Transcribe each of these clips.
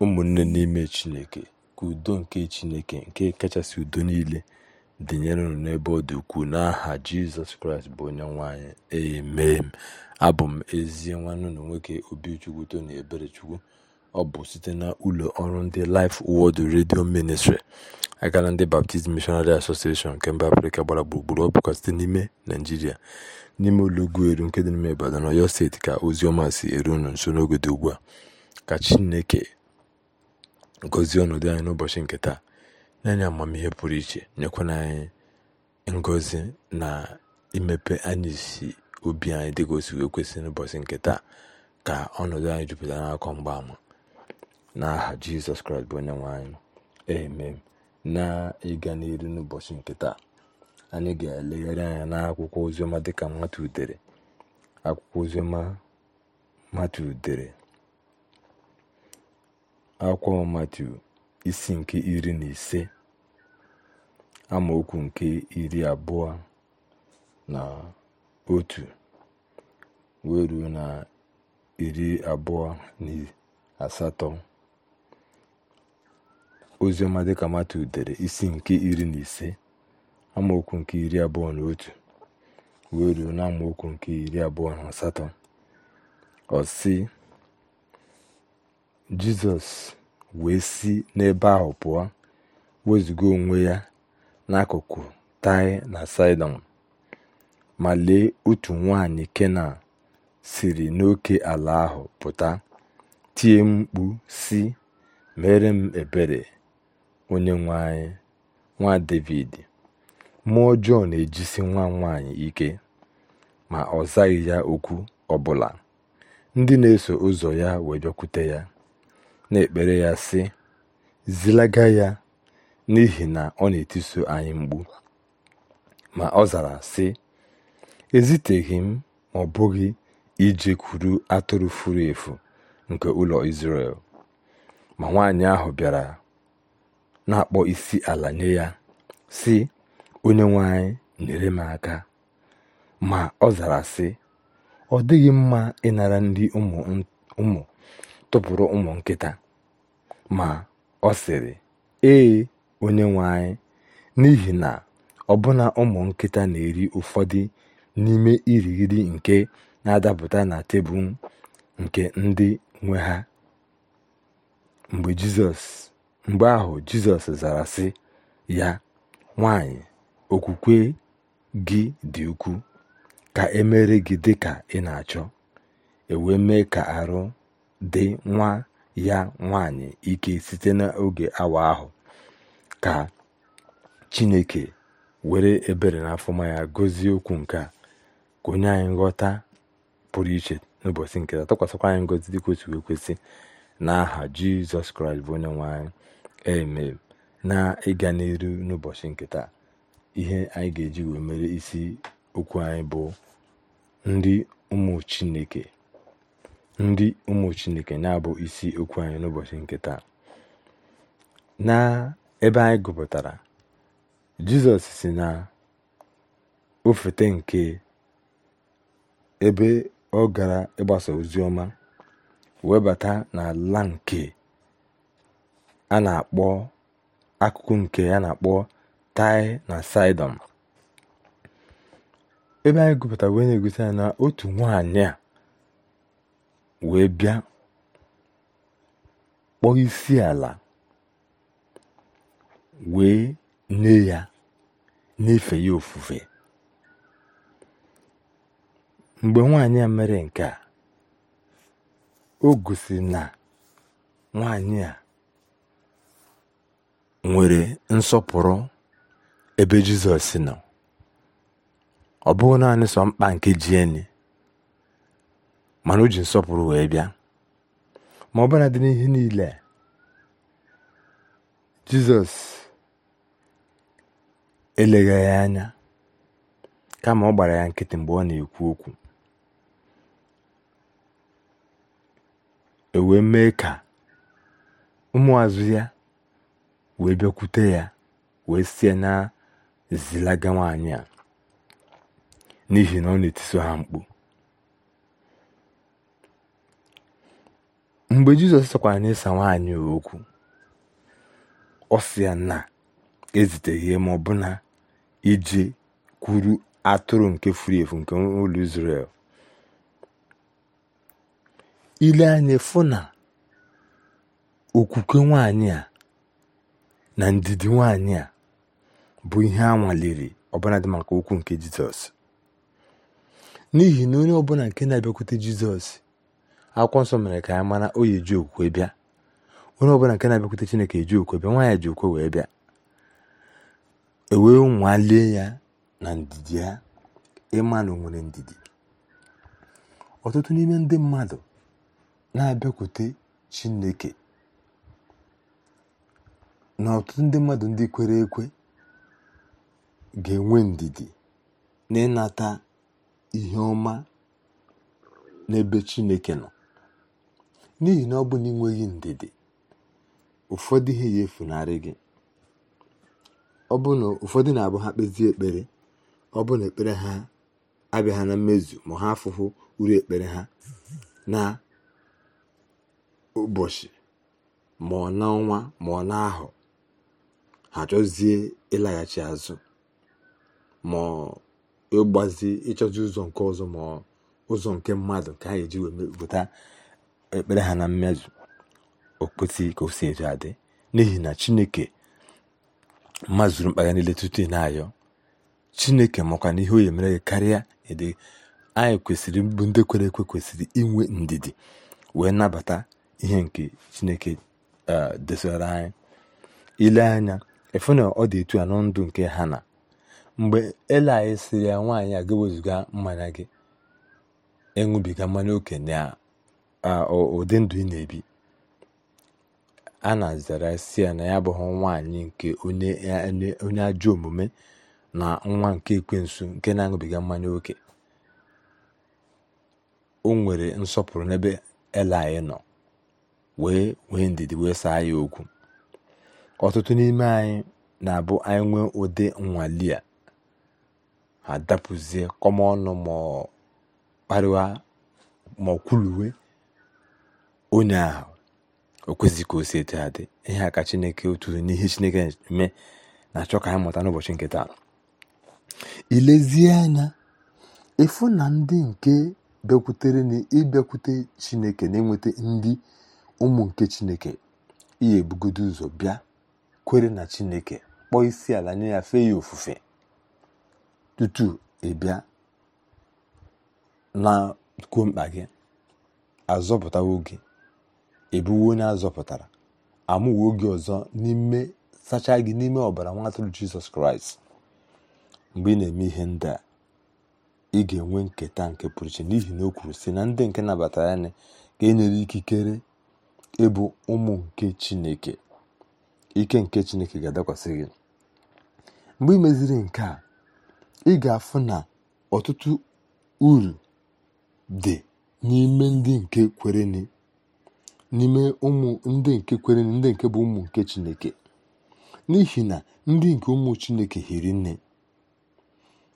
ụmụnne n'ime Chineke ka udo nke Chineke nke kachasị udo niile unu n'ebe ọ dị ukwuu n'aha Jizọs Kraịst bụ onye nwe anyị abụ m ezi nwanne unu nwoke Obichukwu Tony Eberechukwu ọ bụ site na ụlọ ọrụ ndị Life Word redio ministri aka na ndị Baptist Missionary Association nke mba Afrịka gbara gburugburu ọ bụkwa site n'ime Naịjirịa n'ime ụlọugwu eru nke dị n'ime Ibadan Ọyọ steeti ka ozi ọma si eru unu nso n'oge dị ugbu a ka Chineke gọzie ọnọdụ anyị n'ụbọchị nke taa nye anyị amamihe pụrụ iche nyekwana anyị ngozi na imepe anyị si obi anyị dịka o sigo ekwesị n'ụbọchị nke taa ka ọnọdụ anyị jupụtara n'akọ mgbaama aha jizọs kraịst bụ onye nwe anyị amen na ịga n'iru n'ụbọchị nke taa anyị ga-elegharị anya akwụkwọ ozioma dịka mmatu udere akwụkwọ ozioma mmatu udere. akwa Matiu isi nke iri na ise amaokwu nke iri abụọ na otu wee ruo na iri abụọ na asatọ oziọma dịka Matiu dere isi nke iri na ise amaokwu nke iri abụọ na otu wee ruo na amaokwu nke iri abụọ na asatọ ọ sị jizọs wee si n'ebe ahụ pụọ wezụga onwe ya n'akụkụ taị na saịdọn ma lee otu nwanyị kenan siri n'oke ala ahụ pụta tie mkpu si mere m ebere onye anyị nwa devid mmụọ ọjọọ na-ejisi nwa nwaanyị ike ma ọ zaghị ya okwu ọbụla ndị na-eso ụzọ ya wee bịakwute ya na-ekpere ya, sị: “ Zilaga ya, n'ihi na ọ na-etiso anyị mgbu Ma ọ zara, sị: “ Eziteghị m ma ọ bụghị ije kwuru atụrụ furu efu nke ụlọ isrel Ma nwanyị ahụ bịara na-akpọ isi ala nye ya, sị, onye nwanyị nyere m aka. Ma ọ zara, sị, Ọ dịghị mma ịnara ndị ụmụ tụpụrụ ụmụ nkịta ma ọ sịrị, Ee, onye nwe anyị, n'ihi na ọbụna ụmụ nkịta na eri ụfọdụ n'ime irighiri nke na adapụta na tebụl nke ndị nwe ha. Mgbe ahụ Jizọs zara, sị ya, Nwanyị, okwukwe gị dị ukwuu, ka emere gị dị ị na achọ. E wee mee ka arụ dị nwa ya nwanyị ike site n'oge awa ahụ ka Chineke were ebere na afọma ya gozie okwu nke a ka onye anyị nghọta pụrụ iche n'ụbọchị nke taa tụkwasịkwa anyị ngọzi dị kwesịrị kwesị n'aha Jizọs Kraịst bụ onye nwanyị e eme na ịga n'iru n'ụbọchị nketa ihe anyị ga-eji wee mere isi okwu anyị bụ ndị ụmụ Chineke ndị ụmụ Chineke na-abụ isi okwu anyị n'ụbọchị nke taa na ebe anyị gụpụtara Jizọs si na ofete nke ebe ọ gara ịgbasa ozi ọma webata n'ala nke a na-akpọ akụkụ nke a na-akpọ Taị na Saịdọn ebe anyị gụpụtara wee na-egosi anyị na otu nwaanyị a wee bịa kpọọ isi ala wee nye ya na ya ofufe mgbe nwaanyị a mere nke a o gosi na nwaanyị a nwere nsọpụrụ ebe Jizọs nọ ọ bụghị naanị sọ mkpa nke jieni mana o ji nsọpụrụ wee bịa ma ọ bụla dị n'ihe niile jizọs eleghị ya anya kama ọ gbara ya nkịtị mgbe ọ na-ekwu okwu e wee mee ka ụmụazụ ya wee bịakwute ya wee sie na zilaga nwaanyị a n'ihi na ọ na-etiso ha mkpu mgbe Jizọs sọkwara n'ịsa nwaanyị okwu ọ sị ya na eziteghị ma ọ ije kwuru atụrụ nke furu efu nke ụlọ Izrel ile anya fụ na okwukwe nwaanyị a na ndidi nwaanyị a bụ ihe a nwaliri ọbụladị maka okwu nke Jizọs n'ihi na onye ọbụla nke na-abịakwute Jizọs akwụkwọ nsọ mere ka anyị mara o ji okwe bịa onye ọbụla nke na-abịakwute chineke eji okwe bịa nwaanyị ji okwe wee bịa ewee nwalie ya na ndidi ya ịma na ndidi ọtụtụ n'ime ndị mmadụ na-abịakwute chineke na ọtụtụ ndị mmadụ ndị kwere ekwe ga-enwe ndidi na ịnata ihe ọma n'ebe chineke nọ n'ihi na ọ bụ na ịnweghị ndidi ụfọdụ ihe ya efunarị gị ọ na ụfọdụ na-abụ ha kpezie ekpere ọ bụ na ekpere ha abịaghị na mmezu ma ha afụhụ uru ekpere ha na ụbọchị ma ọ n'ọnwa ma ọ ahụ ha chọzie ịlaghachi azụ ma ịgbazi ịchọzi ụzọ nke ọzọ ma ụzọ nke mmadụ ka anyị ji wee ekpere ha na mmezu o kwesịghị ka o si etu adị n'ihi na chineke mazuru mkpa ya niile tutu ị na-ayọ chineke makwa na ihe o yemere gị karịa ịdị anyị kwesịrị mbụ ndị kwere ekwe kwesịrị inwe ndidi wee nabata ihe nke chineke e, desara anyị ile anya efu na ọ dị etu a nọ ndụ nke ha na mgbe ele anyị siri ya nwaanyị a ga mmanya gị ịṅụbiga e mmanya okenye a. ụdị ndụ ị na-ebi a na-azara si ya na ya abụghị nwaanyị nke onye ajọ omume na nwa nke ekwensu nke na-aṅụbiga mmanya oke o nwere nsọpụrụ n'ebe anyị nọ wee wee ndidi wee saa ya okwu ọtụtụ n'ime anyị na-abụ anyị nwee ụdị nnwale a ha dapụzie kọma ma onye ahụ o kwesịghị ka o si etu dị ihe a ka chineke oturu n'ihe chineke mee na-achọ ka anyị mụta n'ụbọchị nke taa ilezie anya ịfụ na ndị nke bịakwutere na ịbịakwute chineke na-enweta ndị ụmụ nke chineke ihe ebugodo ụzọ bịa kwere na chineke kpọọ isi ala nye ya fee ya ofufe tutu ịbịa na kwuo mkpa gị azọpụtawo oge ebuwo onye azọpụtara amụwo oge ọzọ n'ime sacha gị n'ime ọbara nwa jizọs kraịst mgbe ị na-eme ihe ndị a ị ga-enwe nketa nke pụrụ iche n'ihi na o kwuru sị na ndị nke nabatara ya ga-enyere ikikere ịbụ ụmụ nke chineke ike nke chineke ga-adakwasị gị mgbe ị meziri nke a ị ga-afụ na ọtụtụ uru dị n'ime ndị nke kwereni n'ime ụmụ ndị nke kwere ndị nke bụ ụmụ nke chineke n'ihi na ndị nke ụmụ chineke hiri nne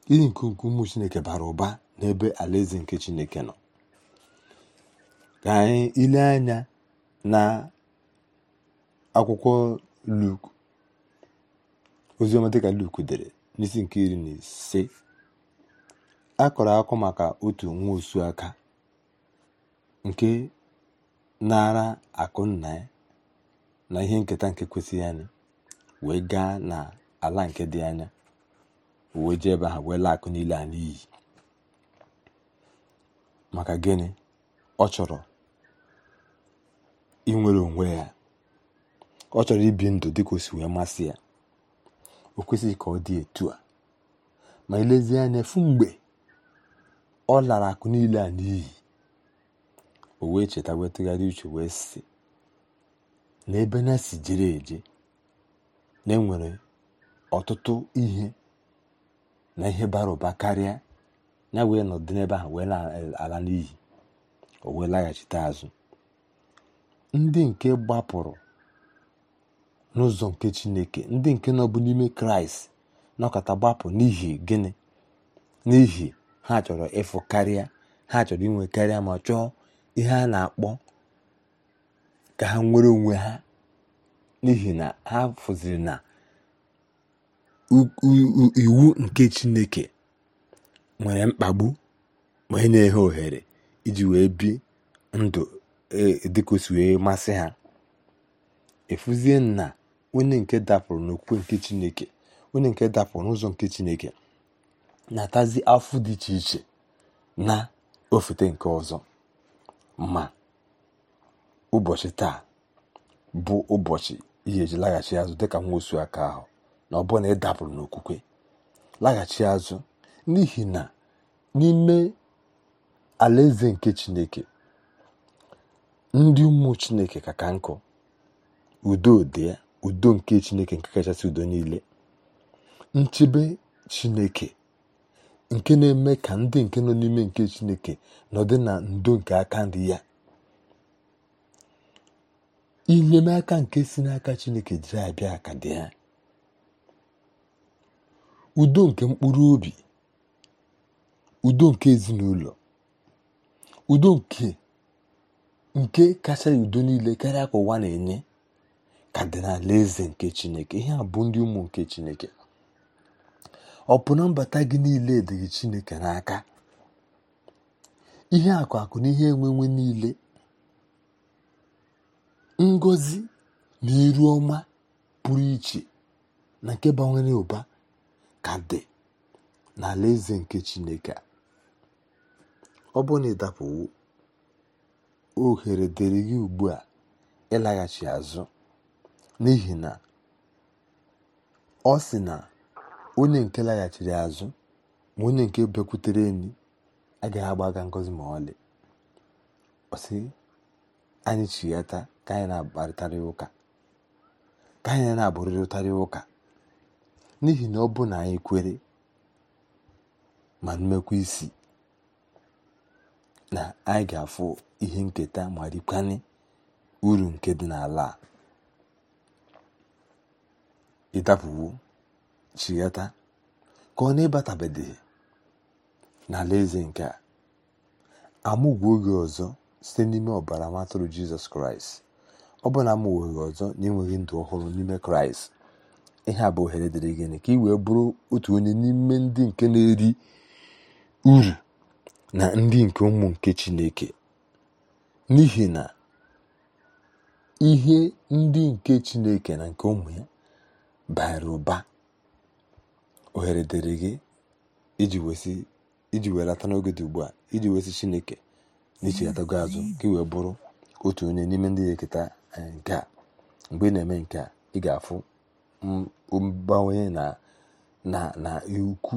ndị nke ụmụ chineke bara ụba n'ebe alaeze nke chineke nọ ka anyị ile anya na akwụkwọ luk oziọma dịka luk dere n'isi nke iri na ise a kọrọ akọ maka otu nwa osu aka nke nara akụ nna ya na ihe nketa nke kwesịghị anyị wee gaa n'ala nke dị anya wee ji ebe ha wee laa akụ niile a n'iyi maka gịnị ọ chọrọ inwere onwe ya ọ chọrọ ibi ndụ dịka osi wee masị ya o kwesịghị ka ọ dị etu a ma elezie anya efu mgbe ọ lara akụ niile a n'iyi o wee cheta wee tụgharị uche wee si n'ebe na si jere eje na enwere ọtụtụ ihe na ihe bara ụba karịa ya wee nọdụ n'ebe ahụ wee eh, ala n'ihi o wee laghachite azụ ndị nke gbapụrụ n'ụzọ nke chineke ndị nke nọbụ n'ime kraịst nọkọta gbapụ n'ihi gịnị n'ihi ha chọrọ ịfụ karịa ha chọrọ inwe karịa ma chọọ ihe a na-akpọ ka ha nwere onwe ha n'ihi na ha fụziri na iwu nke chineke nwere mkpagbu wee na ha ohere iji wee bi ndụ e, dịkosi wee masị ha efuzie na onye nke dapụrụ n'okwukwe nke chineke onye nke dapụrụ n'ụzọ nke chineke na-atazi afọ dị iche iche na ofete nke ọzọ ma ụbọchị taa bụ ụbọchị ihe eji laghachi azụ dịka nwa osu aka ahụ na ọ bụrụ na ị dapụrụ n'okwukwe laghachi azụ n'ihi na n'ime alaeze nke chineke ndị ụmụ chineke ka nkụ udo dị udo nke chineke nke kachasị udo niile nchebe chineke nke na-eme ka ndị nke nọ n'ime nke chineke nọdị na ndo nke aka nri ya inyemaka nke si n'aka chineke jiri abịa ka dị ya udo nke mkpụrụ obi udo nke ezinụlọ udo nke nke kacha udo niile karịa ka ụwa na-enye ka dị n'ala eze nke chineke ihe a bụ ndị ụmụ nke chineke ọ bụ na mbata gị niile dịghị chineke n'aka ihe akụ akụ na ihe enwenwe niile ngozi na iru ọma pụrụ iche na nke gbanwere ụba ka dị n'ala eze nke chineke ọ bụrụ na ịdapụwo ohere dịrị gị ugbu a ịlaghachi azụ n'ihi na ọ sị na onye nke laghachiri azụ ma onye nke bịakwutere enyi agaghị agba aka ngozi ma ọlị ọsị anyị chiyata ka anyị na-akparịtarị ụka ka anyị na-abụrịrịtarị ụka n'ihi na ọ bụ na anyị kwere ma mmekwa isi na anyị ga-afụ ihe nketa ma rikwanye uru nke dị n'ala a ịdapụwo chighata ka ọ na-ịbatabeghị n'ala eze nke a amụgwọ oge ọzọ site n'ime ọbara matụrụ jizọs kraịst ọ bụ na amụgwọghị ọzọ na-enweghị ndụ ọhụrụ n'ime kraịst ihe a bụ ohere dịrị gịnị ka ị wee bụrụ otu onye n'ime ndị nke na-eri uru na ndị nke ụmụ nke chineke n'ihi na ihe ndị nke chineke na nke ụmụ ya bara ụba ohere dịrị gị iji welata n'oge dị ugbu a iji wesi chineke n'ichigatago azụ ka wee bụrụ otu onye n'ime ndị ya eketa eh, nke a mgbe ị na-eme nke a ị ga-afụ mgbanwe na ukwu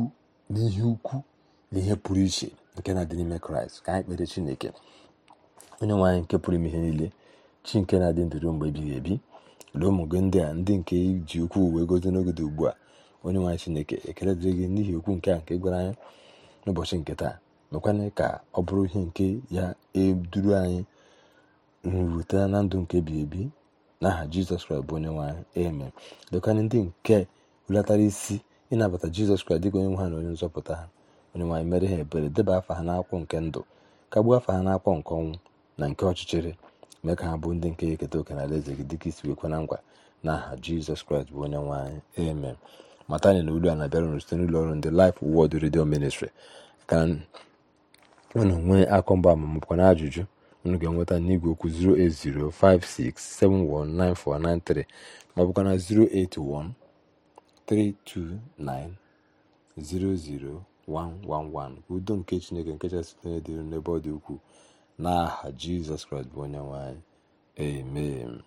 n'ihe ukwu na ihe pụrụ iche nke na-adị n'ime kraịst ka anyị kpere chineke onye nwe anyị nke pụrụ ime ihe niile chi nke na-adị ndụ mgbe ebighị ebi na ụmụ gị ndị a ndị nke iji ukwu wee gozi n'oge dị ugbu a onye nwaanyị chineke ekele dịrị gị n'ihi okwu nke a nke gwara anyị n'ụbọchị nke taa mekwana ka ọ bụrụ ihe nke ya eduru anyị nrute na ndụ nke ebighị ebi n'aha jizọs kraịst bụ onye nwaanyị eme lekwana ndị nke hulatara isi ịnabata jizọs kraịst dịka onye nwe ha na onye nzọpụta ha onye nwaanyị mere ha ebere deba afa ha n'akwụ nke ndụ kagbuo afa ha n'akwụ nke ọnwụ na nke ọchịchịrị mee ka ha bụ ndị nke eketa oke na eze gị dịka isi wekwana ngwa n'aha jizọs kraịst bụ onye nwanyị amen matani na olu a na-abịara unu site n'ụlọ ọrụ ndị Life Word Radio Ministry ka unu nwee akọmba amamụkwa na ajụjụ unu ga-enweta n'igwe okwu 08056719493 ma ọ bụkwa na 08132900111 udo nke Chineke nke chasị onye dị n'ebe ọ dị ukwuu n'aha Jizọs Kraịst bụ onye nwanyị